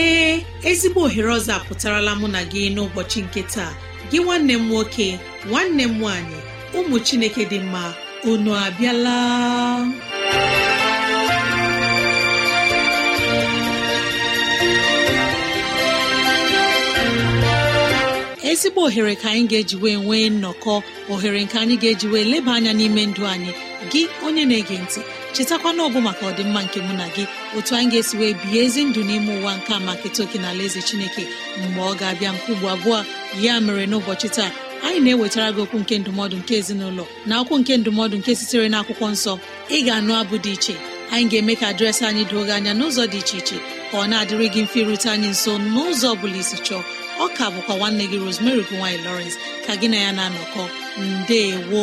ee ezigbo ohere ọzọ apụtarala mụ na gị n'ụbọchị nke taa gị nwanne m nwoke nwanne m nwaanyị ụmụ chineke dị mma unu abịala ezigbo ohere ka anyị ga-eji wee nwee nnọkọ ohere nke anyị ga-eji wee leba anya n'ime ndụ anyị gị onye na-ege ntị chetakwana ọbụ maka ọdịmma nke mụ na gị otu anyị ga-esi wee bihe ezi ndụ n'ime ụwa nke a maka etoke na ala eze chineke mgbe ọ ga-abịa nke ugbo abụọ ya mere n'ụbọchị taa anyị na-ewetara gị okwu nke ndụmọdụ nke ezinụlọ na akwụkwụ nke ndụmọdụ nke sitere na akwụkwọ nsọ ị ga-anụ abụ dị iche anyị ga-eme ka dịrasị anyị doo gị anya n'ụzọ dị iche iche ka ọ na-adịrịghị mfe ịrute anyị nso n'ụzọ ọ bụla isi chọọ ọ ka bụkwa nwanne gị Rosemary gowany Lawrence ka gị na ya na-anọkọ ndewo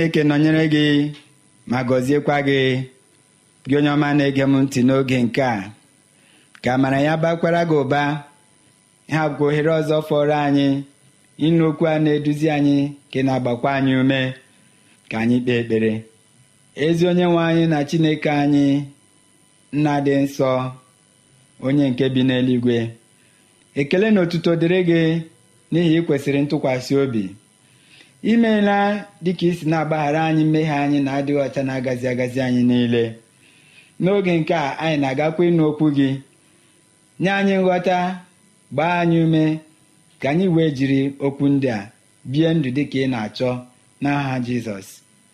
chineke nọnyere gị ma gọziekwa gị gị onye ọma na-ege m ntị n'oge nke a ka amara ya bakwara gị ụba ha bụkwa ohere ọzọ fọrọ anyị ịnụ okwu a na-eduzi anyị ka na-agbakwa anyị ume ka anyị kpee ekpere ezi onye nwe anyị na chineke anyị nna dị nsọ onye nke bi n'eluigwe ekele na otuto dịrị gị n'ihi ị kwesịrị ntụkwasị obi imeela dịka isi na-agbaghara anyị mmehie anyị na-adịghị ọcha na-agazi agazi anyị niile n'oge nke a anyị na-agakwa ịnụ okwu gị nye anyị nghọta gbaa anyị ume ka anyị wee jiri okwu ndị a bie ndụ dị ka ị na-achọ n'aha jizọs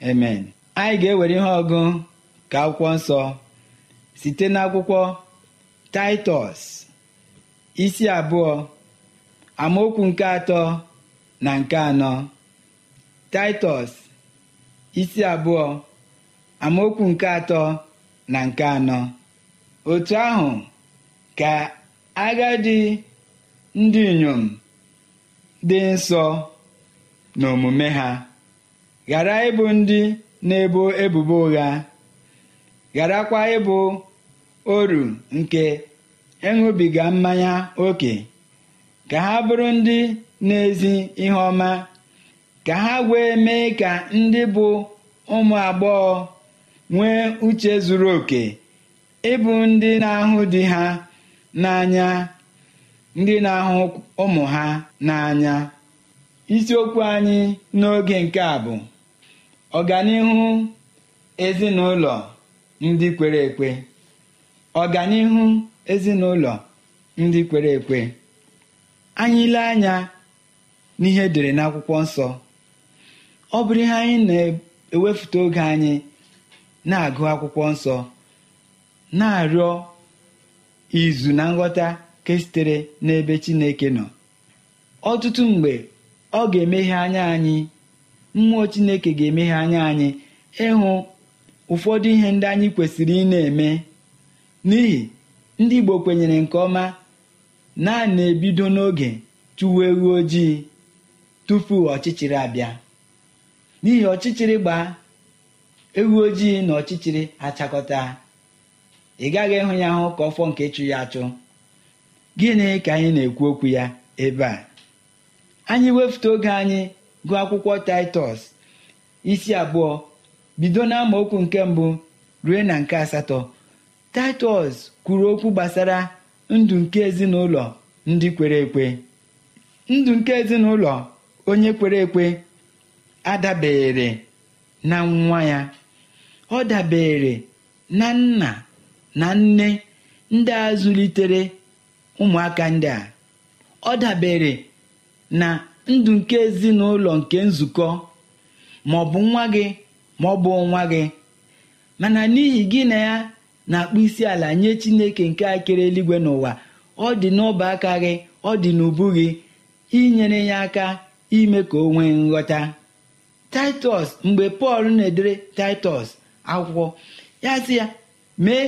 emen anyị ga-ewere ihe ọgụ ka akwụkwọ nsọ site n'akwụkwọ taịtọs isi abụọ amaokwu nke atọ na nke anọ Taịtọs isi abụọ amaokwu nke atọ na nke anọ otu ahụ ka agadi ndị inyom dị nsọ n'omume ha ghara ịbụ ndị na-ebo ebubo ụgha gharakwa ịbụ oru nke ịṅụbiga mmanya oke ka ha bụrụ ndị n'ezi ihe ọma ka ha wee mee ka ndị bụ ụmụ agbọghọ nwee uche zuru oke ịbụ ndị na-ahụ di ha n'anya ndị na-ahụ ụmụ ha n'anya isiokwu anyị n'oge nke a bụ ọganihu ezinụlọ ndị kwere ekwe ọganihu ezinụlọ ndị kwere ekwe anyị anya n'ihe e dere n'akwụkwọ nsọ ọ bụrụ ihe anyị na-ewefute oge anyị na-agụ akwụkwọ nsọ na-arịọ izu na nghọta ke sitere n'ebe Chineke nọ ọtụtụ mgbe ọ ga-emeghe anya anyị mmụọ Chineke ga-emeghe anya anyị ịhụ ụfọdụ ihe ndị anyị kwesịrị ị na-eme n'ihi ndị Igbo kwenyere nke ọma na na-ebido n'oge tụwa ewu ojii tupu ọchịchịrị abịa n'ihi ọchịchịrị gbaa ewu ojii na ọchịchịrị achakọta ị gaghị ịhụ ya hụ ka ọfọ nke chụ ya achụ gịnị ka anyị na-ekwu okwu ya ebe a anyị wefute oge anyị gụọ akwụkwọ taịtọs isi abụọ bido na okwu nke mbụ ruo na nke asatọ taịtọs kwuru okwu gbasara ndụ nke ezinụlọ ndị kwere ekwe ndụ nke ezinụlọ onye kwere ekwe adabere na nwa ya ọ dabere na nna na nne ndị a zụlitere ụmụaka ndị a ọ dabere na ndụ nke ezinụlọ nke nzukọ ma ọ bụ nwa gị ma ọ bụ nwa gị mana n'ihi gị na ya na-akpụ isi ala nye chineke nke a kere eluigwe n'ụwa ọ dị n'ọba aka gị ọ dị n'ubu gị inyere ya aka ime ka o nwee nghọta titus mgbe pọl na-edere titus akwụkwọ ya sị ya mee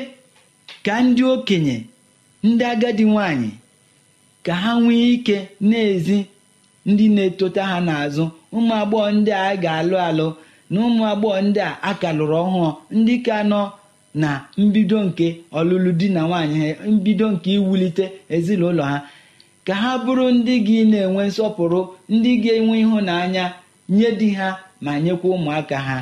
ka ndị okenye ndị agadi nwanyị ka ha nwee ike na-ezi ndị na-etota ha n'azụ ụmụ agbọghọ ndị a ga-alụ alụ na ụmụ agbọghọ ndị a akalụrụ ọhụụ ndị ka nọ na mbido nke ọlụlụ di na nwaanyị ha mbido nke iwulite ezinụlọ ha ka ha bụrụ ndị gị na-enwe nsọpụrụ ndị ga-enwe ịhụnanya nye di ha ma nyekwa ụmụaka ha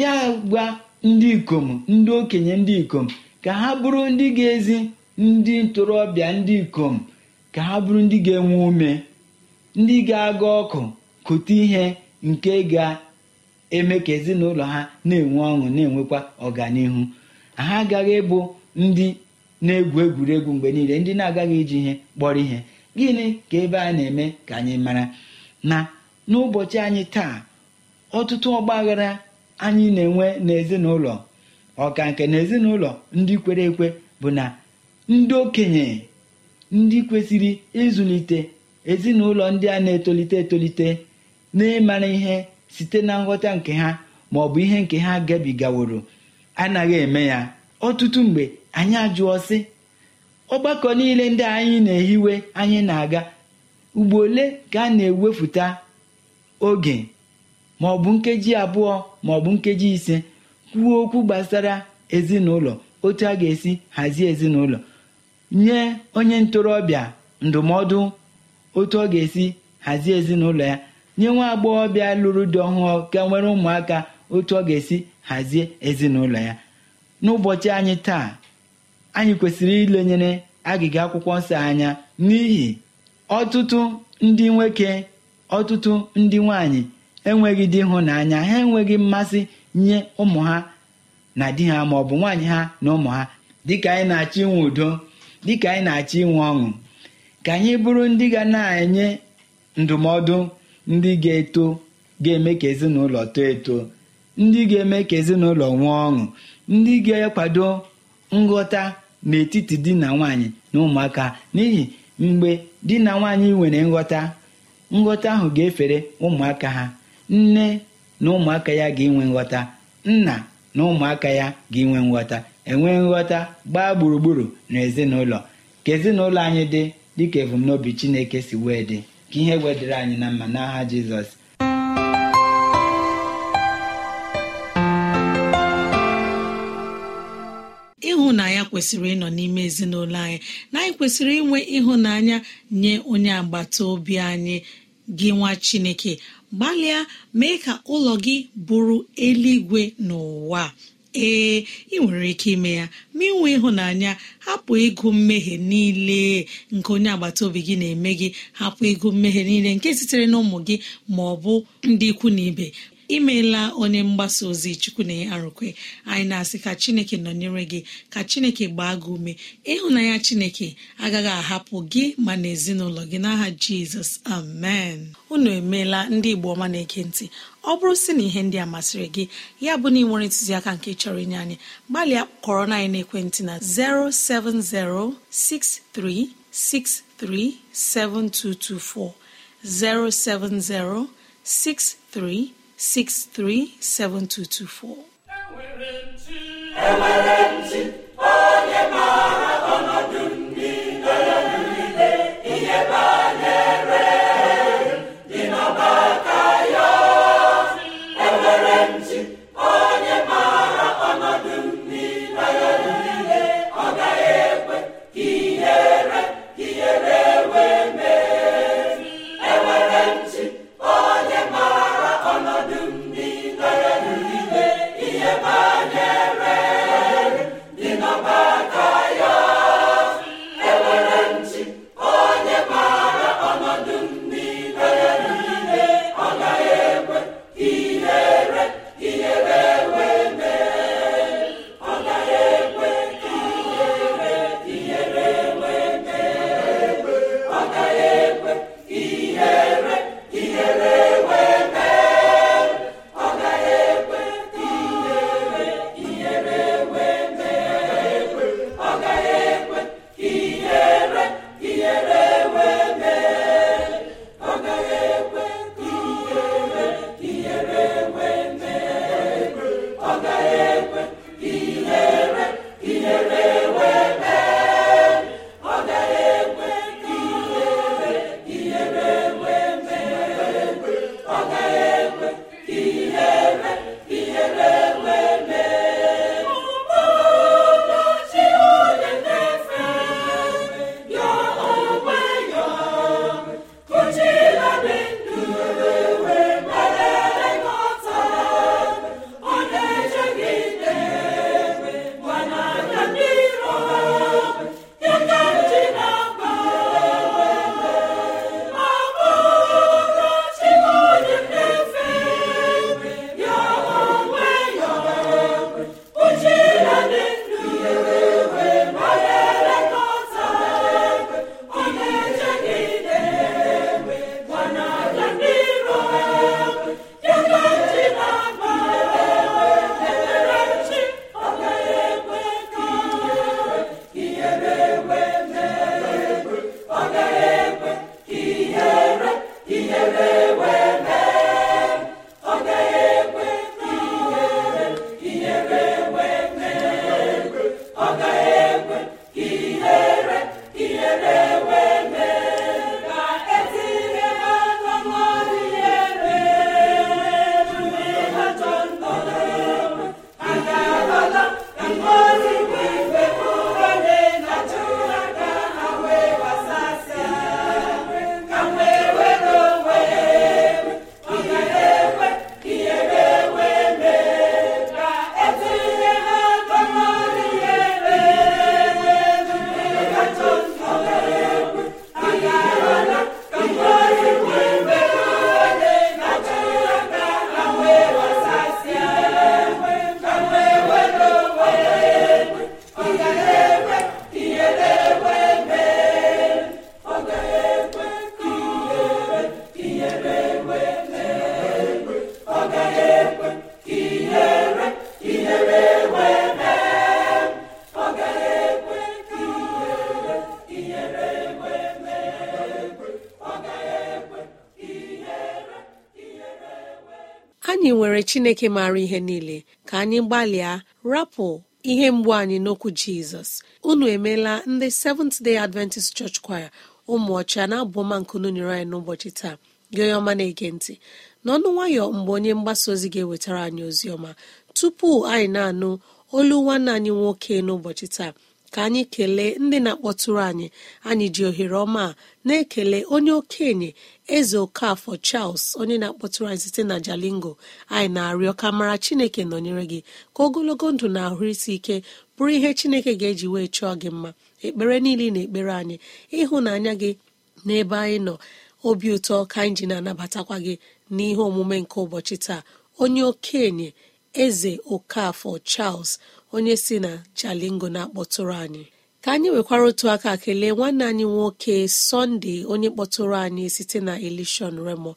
ya gwa ndị ikom ndị okenye ndị ikom ka ha bụrụ ndị ga-ezi ndị ntorobịa ndị ikom ka ha bụrụ ndị ga-enwe ume ndị ga-aga ọkụ kụta ihe nke ga-eme ka ezinụlọ ha na-enwe ọṅụ na-enwekwa ọganihu ha agaghị ịbụ ndị na-egwu egwuregwu mgbe niile ndị na-agaghị iji ihe kpọrọ ihe gịnị ka ebe a na-eme ka anyị mara na n'ụbọchị anyị taa ọtụtụ ọgbaghara anyị na-enwe n'ezinụlọ ọka nke na ezinụlọ ndị kwere ekwe bụ na ndị okenye ndị kwesịrị ịzụlite ezinụlọ ndị a na-etolite etolite n'ịmara ihe site na nghọta nke ha ma ọ bụ ihe nke ha gabigaworo anaghị eme ya ọtụtụ mgbe anyị ajụọ sị ọgbakọ niile ndị anyị na-ehiwe anyị na-aga ugbo ole ka a na-ewepụta oge ma ọ bụ nkeji abụọ ma ọ bụ nkeji ise kwuo okwu gbasara ezinụlọ otu a ga-esi hazie ezinụlọ nye onye ntorobịa ndụmọdụ otu ọ ga-esi hazie ezinụlọ ya nye nwa agbọghọbịa lụrụ di ọhụụ ka e nwere ụmụaka otu ọ ga-esi hazie ezinụlọ ya n'ụbọchị anyị taa anyị kwesịrị ilenyere agịga akwụkwọ nsọ anya n'ihi ọtụtụ ndị nwoke ọtụtụ ndị nwanyị enweghị di n'anya ha enweghị mmasị nye ụmụ ha na di ha ma ọ bụ nwaanyị ha na ụmụ ha dịka anyị na-achọ inwe udo dịka anyị na-achọ inwe ọṅụ ka anyị bụrụ ndị ga na-enye ndụmọdụ ndị ga-eto ga-eme ka ezinụlọ too eto ndị ga-eme ka ezinụlọ nwee ọṅụ ndị ga-akwado nghọta n'etiti di na nwanyị na ụmụaka n'ihi mgbe di na nwanyị nwere nghọta nghọta ahụ ga-efere ụmụaka ha nne na ụmụaka ya ga-enwe nghọta nna na ụmụaka ya ga-enwe nghọta enwe nghọta gbaa gburugburu na ezinụlọ ka ezinụlọ anyị dị dịka ebumnobi Chineke si wee dị ka ihe wedịre anyị na mma n'aha Jizọs kwesịrị ịnọ n'ime ezinụlọ anyị na anyị kwesịrị inwe ịhụnanya nye onye agbata obi anyị gị nwa chineke gbalịa mee ka ụlọ gị bụrụ eluigwe n'ụwa ee ị nwere ike ime ya ma inwe ịhụnanya hapụ ịgụ mmehie niile nke onye agbata obi gị na-eme gị hapụ ịgụ mmehie niile nke sitere n'ụmụ gị ma ọ bụ ndị ikwu na ibe imeela onye mgbasa ozi chukwu chukwunaya arụkwe anyị na-asị ka chineke nọnyere gị ka chineke gbaa gị ume ịhụnanya chineke agaghị ahapụ gị ma na ezinụlọ gị n'aha jizọs amen unu emeela ndị igbo ọma na-ege ntị ọ bụrụ sị na ihe ndị a masịrị gị ya bụ na ị nwere ntụziaka nke chọrọ inye anyị gbalịa kọrọ na ekwentị na 07063637224 07063 637224 chineke maara ihe niile ka anyị gbalịa rapụ ihe mgbu anyị n'okwu jizọs unu emeela ndị seventh day adventist church choir ụmụ ọcha na-abụọma nkunu nyere anyị n'ụbọchị taa gị onye ọma na-ege ntị n'ọnụ nwayọ mgbe onye mgbasa ozi ga-ewetara anyị ozi ọma tupu anyị na-anụ olu nwanne anyị nwoke n'ụbọchị taa ka anyị kelee ndị na-akpọtụrụ anyị anyị ji ohere ọma na-ekele onye okenye eze okafọ charles onye na-akpọtụrụ anyị site na jalingo anyị na-arịọ ka mara chineke nọnyere gị ka ogologo ndụ na ahụ isi ike bụrụ ihe chineke ga-eji wee chọọ gị mma ekpere niile na ekpere anyị ịhụnanya gị n'ebe anyị nọ obi ụtọ ka anyị ji na-anabatakwa gị n'ihe omume nke ụbọchị taa onye okenye eze okafọ charles onye si na jalingo na-akpọtụrụ anyị ka anyị nwekwara otu aka kelee nwanne anyị nwoke sọnde onye kpọtụrụ anyị site na elishon remo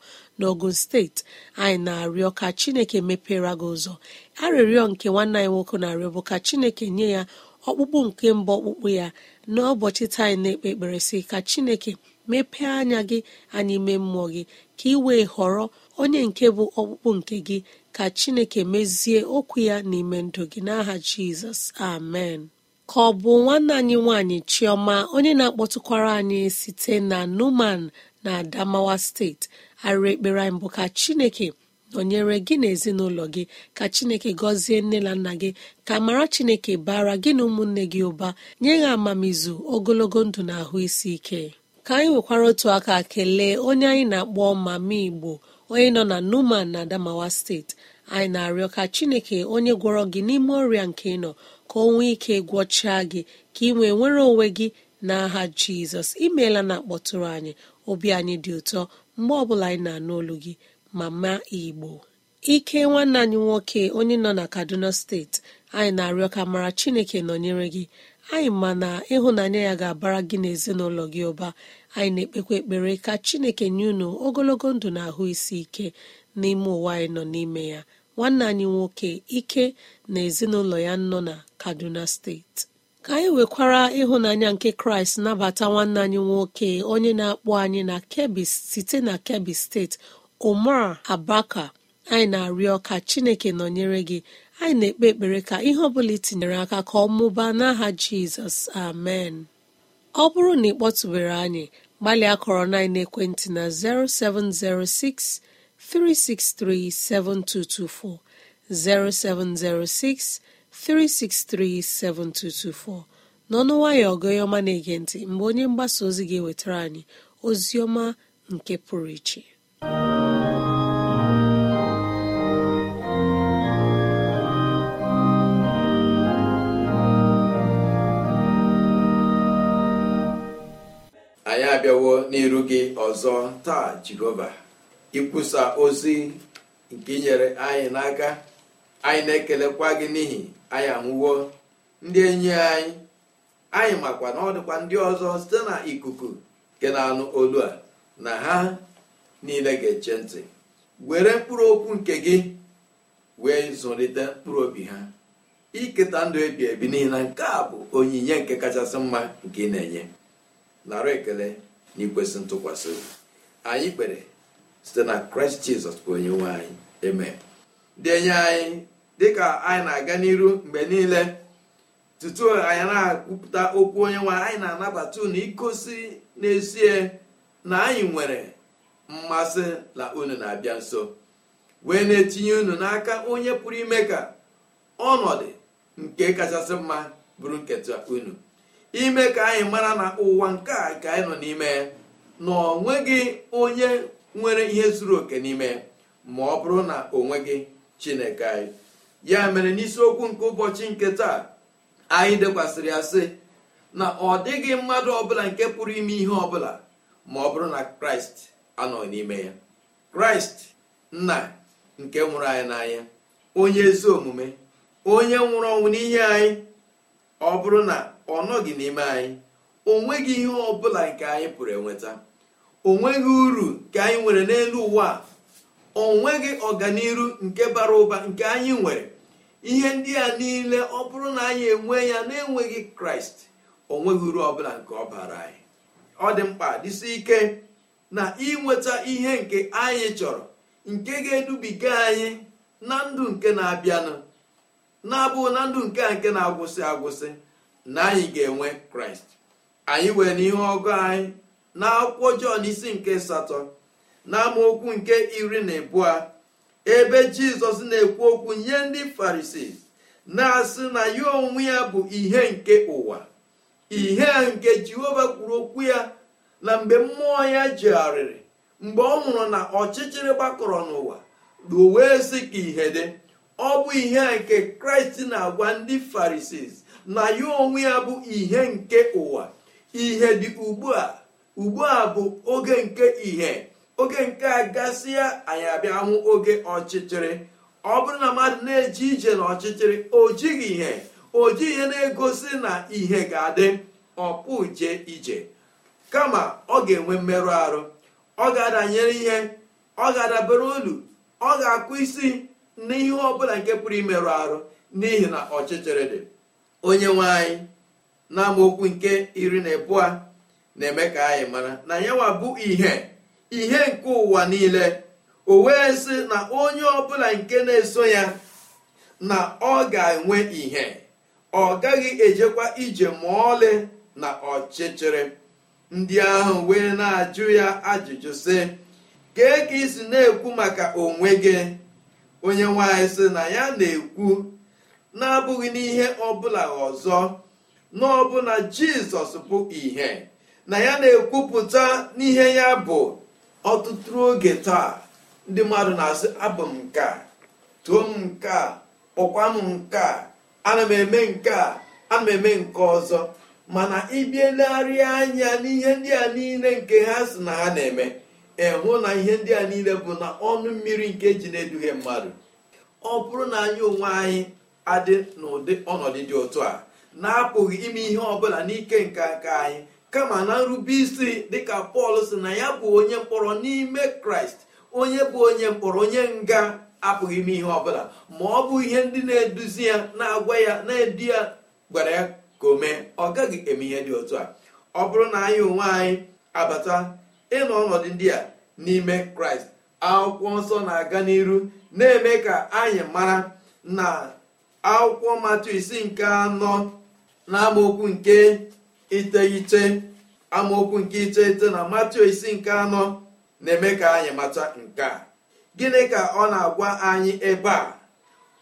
ogun steeti anyị na-arịọ ka chineke mepere gị ụzọ arịrịọ nke nwanne anyị nwoke na-arịọ bụ ka chineke nye ya ọkpụkpụ nke mba ọkpụkpụ ya n'ụbọchị taa anyị na-ekpe ekpere ka chineke mepee anya gị anyị mee mmụọ gị ka ị wee họrọ onye nke bụ ọkpụkpụ nke gị ka chineke mezie okwu ya n'ime ndụ gị n'aha jizọs amen ka ọ bụ nwanne anyị nwanyị chioma onye na-akpọtụkwara anyị site na numan na adamawa steeti arịrị ekpere anyị bụ ka chineke nọnyere gị na ezinụlọ gị ka chineke gọzie nne na nna gị ka mara chineke bara gị na ụmụnne gị ụba nye ha amamizu ogologo ndụ na ahụ isi ike ka anyị nwekwara otu aka kelee onye anyị na-akpọ mama igbo onye nọ na numan na adamawa steeti anyị na-arịọ ka chineke onye gwọrọ gị n'ime ọrịa nke nọ ka o nwee ike gwọchaa gị ka ị nwee nwere onwe gị aha jizọs imeela na akpọtụrụ anyị obi anyị dị ụtọ mgbe ọbụla anyị na-anụ olu gị mama igbo ike nwanne anyị nwoke onye nọ na kaduna steeti anyị na-arịọ ka mara chineke nọnyere gị anyị ma ịhụnanya ya ga-abara gị na gị ụba anyị na-ekpekwa ekpere ka chineke nye unu ogologo ndụ na ahụ isi ike n'ime ụwa anyị nọ n'ime ya nwanne anyị nwoke ike na ezinụlọ ya nọ na kaduna steeti ka anyị nwekwara ịhụnanya nke kraịst nabata nwanne anyị nwoke onye na-akpọ anyị na kebbi site na kebbi steeti omar abaka anyị na-arịọ ka chineke nọnyere gị anyị na-ekpe ekpere ka ihe ọ bụla itinyere aka ka ọ mụbaa n'aha jizọs amen ọ bụrụ na ị kpọtụbere anyị gbalịa kọrọ na ekwentị na 0706 363 7224 0706 363 7224 n'ọnụ nwayọ ọgọyọma na-ege ntị mgbe onye mgbasa ozi ga-ewetara anyị ozi ọma nke pụrụ iche anyị abịawo n'iru gị ọzọ taa jehova ikwusa ozi nke inyere anyị n'aka anyị na-ekelekwa gị n'ihi anyị anwụwo ndị enyi anyị anyị makwa na ọ dịkwa ndị ọzọ site na ikuku nke na-anụ olu a na ha niile ga-eche ntị were mkpụrụ okwu nke gị wee zụlite mkpụrụ obi ha iketa ndụ ebi ebi n'ihi na nke a bụ onyinye nke kachasị mma nke ị na-enye nara ekele na ikwesị ntụkwasị obi anyị kpere site na kraịst jizọs onye nwe anyị eme dị enye anyị dịka anyị na-aga n'iru mgbe niile tutu anyị na-akwupụta okwu onye nwe anyị na-anabata unu igosi n'ezie na anyị nwere mmasị na unu na-abịa nso wee na-etinye unu n'aka onye pụrụ ime ka ọnọdụ nke kachasị mma bụrụ nketa unu ime ka anyị mara na ụwa nke a ka anyị nọ n'ime na ọ nweghị onye nwere ihe zuru oke n'ime ma ọ bụrụ na o nweghị chineke anyị ya mere n'isiokwu nke ụbọchị nke taa anyị dekwasịrị ya sị na ọ dịghị mmadụ ọbụla nke pụrụ ime ihe ọbụla ma ọ bụrụ na kraịst anọ n'ime ya kraịst nna nke nwụrụ anyị n'anya onye ezi omume onye nwụrụ ọnwụ n'ihe anyị ọ bụrụ na ọ nọghị n'ime anyị o nweghị ihe ọ bụla nke anyị pụrụ enweta o nweghị uru ka anyị nwere n'elu ụwa o nweghị ọganiru nke bara ụba nke anyị nwere ihe ndị a niile ọ bụrụ na anyị enwe ya na-enweghị kraịst o nweghị uru ọbụla nke ọ bara anyị ọ dị mkpa dịsi ike na inweta ihe nke anyị chọrọ nke ga-edubiga anyị na ndụ nke na-abịanụ na-abụ na ndụ nke a nke na-agwụsị agwụsị na anyị ga-enwe kraịst anyị wee n'ihe ọgụ anyị na akwụkwọ jọn isi nke satọ na amaokwu nke iri na ịbụọ ebe jizọs na-ekwu okwu nye ndị farisii na-asị na ya onwe ya bụ ihe nke ụwa ihe nke jehova kwuru okwu ya na mgbe mmụọ ya jegharịrị mgbe ọ nwụrụ na ọchịchịrị gbakọrọ n'ụwa wee sị ka ihe dị ọ bụ ihe nke kraịst na-agwa ndị farisis na ya onwe ya bụ ihe nke ụwa ihe dị ugbu a ugbu a bụ oge nke ihe oge nke a gasịa anyị abịa oge ọchịchịrị ọ bụrụ na mmadụ na eji ije n'ọchịchịrị o jighị ihe o jighị ihe na-egosi na ihe ga-adị jee ije kama ọ ga-enwe mmerụ arụ ọ ga-adanyere ihe ọ ga-adabere olu ọ ga-akụ isi n'ihe ọ bụla nke pụrụ imerụ arụ n'ihi na ọchịchịrị dị onye nwe anyị na nke iri na ịbụọ na-eme ka anyị mara na nyewabu bụ ihe ihe nke ụwa niile o wee sị na onye ọbụla nke na-eso ya na ọ ga-enwe ihe ọ gaghị ejekwa ije ma ọlị na ọchịchịrị ndị ahụ wee na-ajụ ya ajụjụ sị kee ka isi na-ekwu maka onwe gị onye nwanyị sị na ya na-ekwu na-abụghị n'ihe ọbụla ọzọ n'ọbụna jizọs bụ ìhè na ya na-ekwupụta n'ihe ya bụ ọtụtụ oge taa ndị mmadụ na-asị abụ m nke a m nke a kpọkwa m nke a ana m eme nke a ana m eme nke ọzọ mana ịbịa anya n'ihe ndị a niile nke ha si na ha na-eme ịhụ na ihe ndị a niile bụ na ọnụ mmiri nke ji na-eduhie mmadụ ọ bụrụ na anyị onwe anyị adị n'ụdị ọnọdụ dị otu a na-apụghị ime ihe ọbụla n'ike nke aka anyị kama na nrube isi dịka pọl si na ya bụ onye mkpọrọ n'ime kraịst onye bụ onye mkpọrọ onye nga apụghị ime ihe ọbụla ma ọ bụ ihe ndị na-eduzi ya na-agwa ya na-edu ya gwara ya ka o mee ọ gaghị eme ihe dị otu a ọ bụrụ na anyị onwe anyị abata ịnọ ọnọdụ ndị a n'ime kraịst akwụkwọ nsọ na-aga n'iru na-eme ka anyị mara na akwụkwọ matu isi nke anọ na amaokwu nke iteghete amaokwu nke iteghete na matu isi nke anọ na-eme ka anyị mata nke a gịnị ka ọ na-agwa anyị ebe a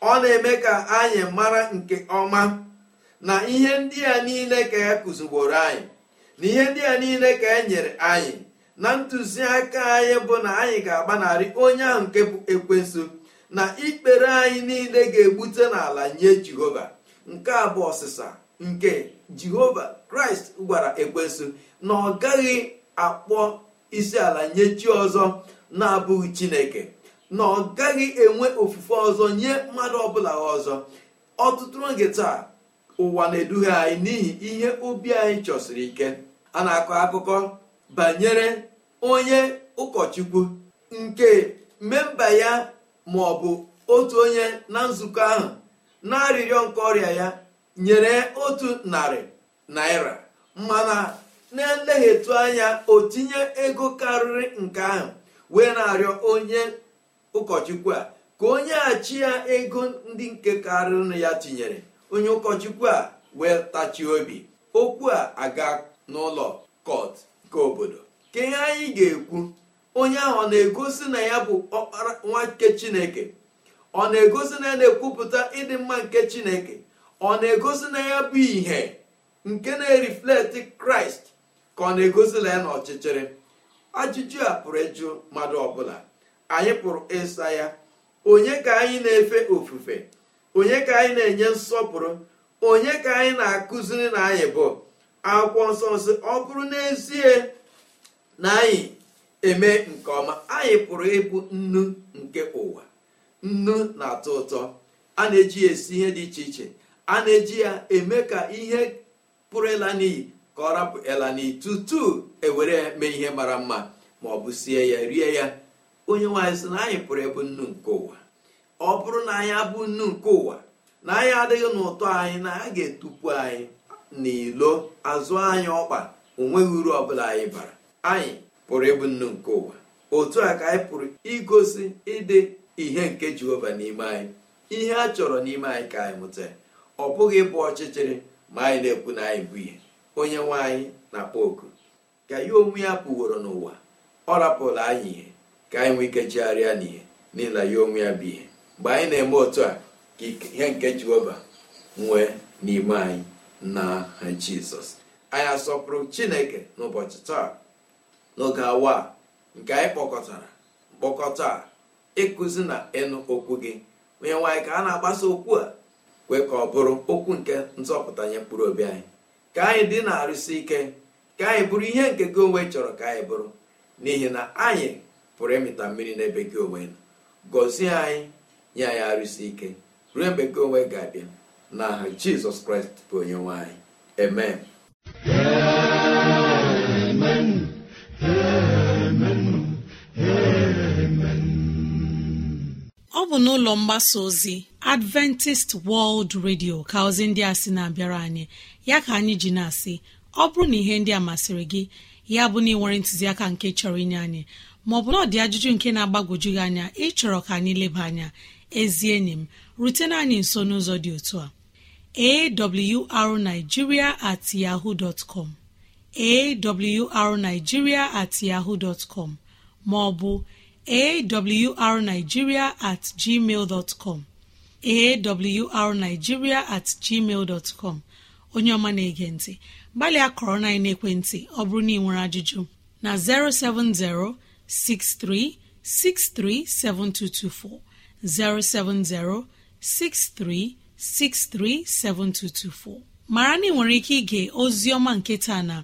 ọ na-eme ka anyị mara nke ọma na ihe ndị a niile ka ya e kụzigboro anyị na ihe ndị a niile ka e nyere anyị na ntụziaka anyị bụ na anyị ga-agbanarị onye ahụ nke bụ ekwensu na ikpere anyị niile ga-egbute n'ala nye jehova nke a bụ ọsịsa nke jehova kraịst gwara ekwensu na ọ gaghị akpọ isi ala nye chi ọzọ na-abụghị chineke na ọ gaghị enwe ofufe ọzọ nye mmadụ ọbụla ọzọ ọtụtụ oge taa ụwa na-eduhie anyị n'ihi ihe obi anyị chọsiri ike a na-akọ akụkọ banyere onye ụkọchukwu nke memba ya ma ọ bụ otu onye na nzukọ ahụ na-arịrịọ nke ọrịa ya nyere otu narị naira mana na-eleghị anya o tinye ego karịrị nke ahụ wee na-arịọ onye ụkọchukwu a ka onye achị ya ego ndị nke karịrị ya tinyere onye ụkọchukwu a wee tachie obi okwu a aga n'ụlọ kọt nke obodo ka ihe anyị ga-ekwu onye ahụ ọ na-egosi na ya bụ ọkpara nwa nke chineke ọ na-egosi na ya na-ekwupụta ịdị mma nke chineke ọ na-egosi na ya bụ ihe nke na-erifleti kraịst ka ọ na-egosi na ya n'ọchịchịrị ajụjụ a pụrụ ịjụ mmadụ ọbụla anyị pụrụ ịsa ya onye ka anyị na-efe ofufe onye ka anyị na-enye nsọpụrụ onye ka anyị na-akụziri na anyị bụ akwụkwọ nsọ nsị ọ bụrụ n'ezie na anyị eme nke ọma anyị pụrụ ịbụ nnu nke ụwa nnu na-atọ ụtọ a na-eji ya esi ihe dị iche iche a na-eji ya eme ka ihe pụrụ ịla n'iyi ka ọ rapụ ịla n'iyi tutu ewere ya mee ihe mara mma ma ọ bụ sie ya rie ya onye nwaanyị sị na anyị pụrụ ịbụ nnu nke ụwa ọ bụrụ na anyị abụ nnu nke ụwa na anyị adịghị n'ụtọ anyị na a ga-etupu anyị n'ilo azụ anyị ọkpa onweghị uru ọbụla anyị bara anyị pụrụ ịbụ nnu nke ụwa otu a ka anyị pụrụ igosi ịdị ihe nke jehova n'ime anyị ihe a chọrọ n'ime anyị ka anyị mụta ọ bụghị ịbụ ọchịchịrị ma anyị na-ekwu na anyị bụ ihe onye nwe anyị na-akpọ oku ka ya onwe ya pụworo n'ụwa ọ rapụla anyị ihe ka anyị nwee ike chegharịa n'ihe n'ihi na ya onwe ya bụ ihe mgbe anyị na-eme otu a ka ihe nke jehova nwee n'ime anyị na jizọs anyị asọpụrụ chineke n'ụbọchị taa n'oge awa nke anyị kpọkọtara mkpọkọta ịkụzi na ịnụ okwu gị onye nwaanyị ka a na-agbasa okwu a kwe ka ọ bụrụ okwu nke nzọpụta nye mkpụrụ obi anyị ka anyị dị na-arụsi ike ka anyị bụrụ ihe nke gị onwe chọrọ ka anyị bụrụ n'ihi na anyị pụrụ ịmịta mmiri n'ebe gị onwe nọ gọzie anyị nye anyị arụsi ike ruo mgbe gị onwe ga-abịa n'aha jizọs kraịst bụ onye nwaanyị anyị amen ọ bụ n'ụlọ mgbasa ozi adventist world radio ka ozi ndị a sị na-abịara anyị ya ka anyị ji na-asị ọ bụrụ na ihe ndị a masịrị gị ya bụ na ị nwere ntụziaka nke chọrọ inye anyị maọbụ na ọ dị ajụjụ nke na-agbagwoju gị anya ịchọrọ ka anyị leba anya ezi enyi m rutena anyị nso n'ụzọ dị otu a arigiria at yahoo dot com awrnigeria at yahoo dot maọbụ awrnigeria at gmail awrnigeria at gmail dot onye ọma na-ege ntị gbalịa kọrọ na ekwentị ọ bụrụ na ị nwere ajụjụ na 070 6363 7224 070 6363 7224 mara na ị nwere ike ige ozi ọma nke taa na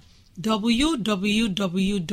www.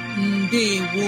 Ndewo